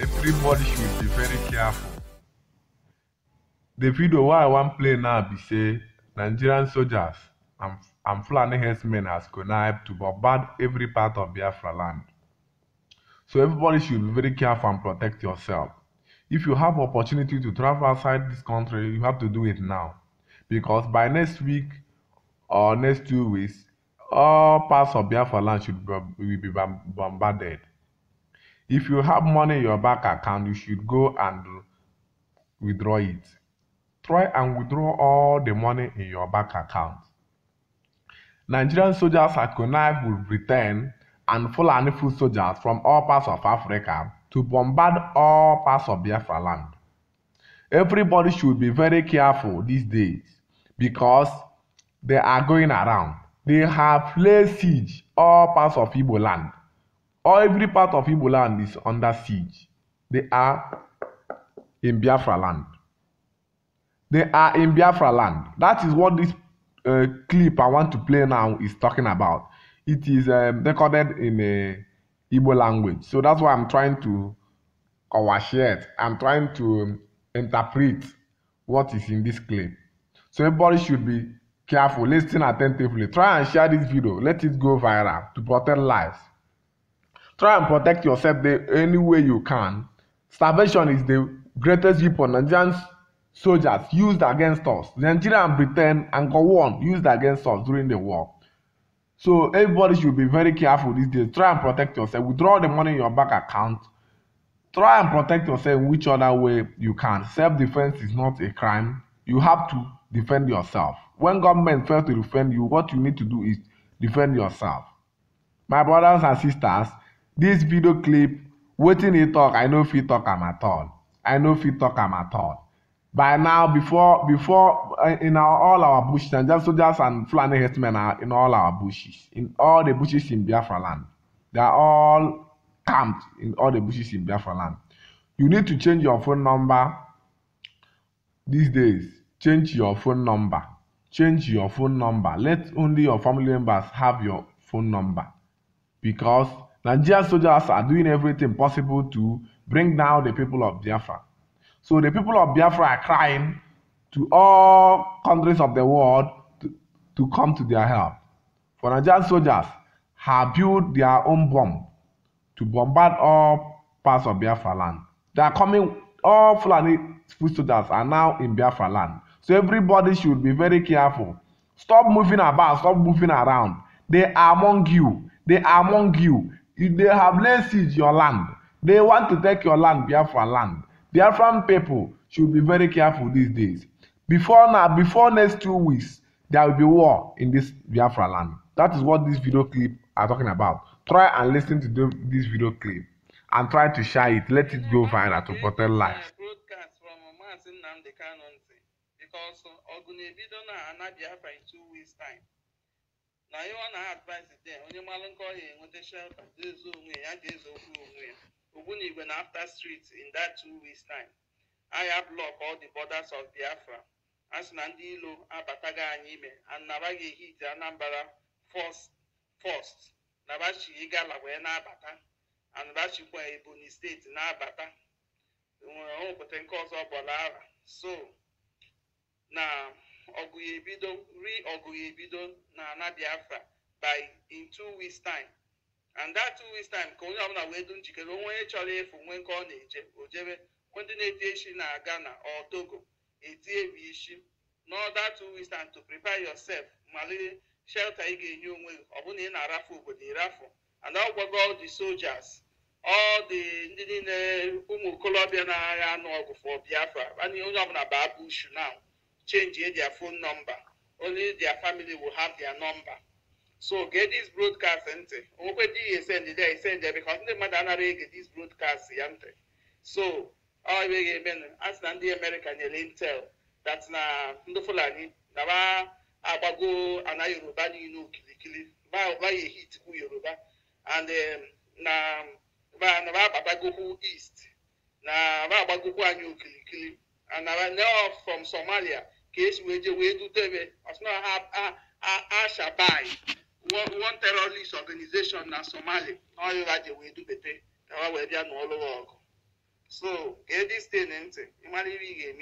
everybody should be very careful. The video why i wan play now be say nigerian sojas and fulani herdsmen has connived to bombard every part of biafra land so everybody should be very careful and protect yourself if you have opportunity to travel outside this country you have to do it now because by next week or next two weeks all parts of biafra land should be, will be bombarded if you have money in your bank account you should go and withdraw it try and withdraw all the money in your bank account. Nigerian soldiers are connived with return and Fulani foot soldiers from all parts of Africa to bombard all parts of Biafra land. Everybody should be very careful these days because they are going around. They have laid siege all parts of Igbo land. All every part of Igbo land is under siege. They are in Biafra land. They are in Biafra land. That is what this uh, clip I want to play now is talking about. It is um, recorded in uh, Igbo language. So that's why I'm trying to overshare it. I'm trying to um, interpret what is in this clip. So everybody should be careful, listen attentively. Try and share this video. Let it go viral to protect lives. Try and protect yourself the, any way you can. Starvation is the greatest weapon Nigerians soldiers used against us. Nigeria and Britain and one used against us during the war. So everybody should be very careful these days. Try and protect yourself. Withdraw the money in your bank account. Try and protect yourself in which other way you can. Self-defense is not a crime. You have to defend yourself. When government fails to defend you, what you need to do is defend yourself. My brothers and sisters, this video clip, wetin he talk, I no fit talk am at all. I no fit talk am at all by now before before uh, in our, all our bushes and just soldiers and Fulani herdsmen are in all our bushes in all the bushes in Biafra land they are all camped in all the bushes in Biafra land you need to change your phone number these days change your phone number change your phone number let only your family members have your phone number because Nigerian soldiers are doing everything possible to bring down the people of Biafra So the people of Biafra are crying to all countries of the world to, to come to their help. For Nigerian soldiers have built their own bomb to bombard all parts of Biafra land. They are coming, all Fulani foot soldiers are now in Biafra land. So everybody should be very careful. Stop moving about, stop moving around. They are among you. They are among you. If they have laid siege your land, they want to take your land, Biafra land. Biafran people should be very careful these days. Before now, before next two weeks, there will be war in this Biafra land. That is what this video clip are talking about. Try and listen to the, this video clip and try to share it. Let it go viral to protect lives. Because Ogunebido na ana advise dị onye malụ nkọ ya enweta shelter, dezo onwe ya, ya ga-ezo okwu onwe Ogbunigwe na after street in that two weeks time. Aya block all the borders of Biafra. A sị na ndị ilo abataghị anyị ime anabaghị hit Anambra first nabachi Igala wee na-abata anabachikwa Ebonyi steeti na-abata e nwere ọnwụpụta nke ọzọ bọla ara so na ọgụ ebido ri ọgụ ebido na ana Biafra by in two weeks time and that two weeks time ka onye ọbụla wee dum njikere onwe onye chọrọ efu nwee nke ọ na-eje o jebe ndị na-eti isi na-aga na otogo etie bụ isi n'ọda two weeks time to prepare yourself malite shelter ị ga-enye onwe gị ọbụna ị na-arafu obodo ịrafụ and ọ gwago all the soldiers all ndị niile ụmụ okolobịa na-agha anụ ọgụ for Biafra onye ọbụla baa bushu now change their phone number only their family will have their number. so gee dis broadcast ntị onwekwe dị ese esend dị esend bikos ndị mmadụ anaghị ege dis broadcast ya ntị so ọ ebe ga emenụ a sị na ndị amerịka nyere intel dat na ndị fulani na ba agbago ana yoruba niile okilikili ba ya ehitikwu yoruba and um, na ba agbagokwu east na ba agbagokwu anyị okilikili and na from somalia ka esi wee je wee dute ebe ọsịna ha ashabai one, one terrorist organization na somali ọyụra ji wee dubete ka ha wee bịa nụọ lụrụ ọgụ so gee dis tin ntị ịmara ihe ị ga-eme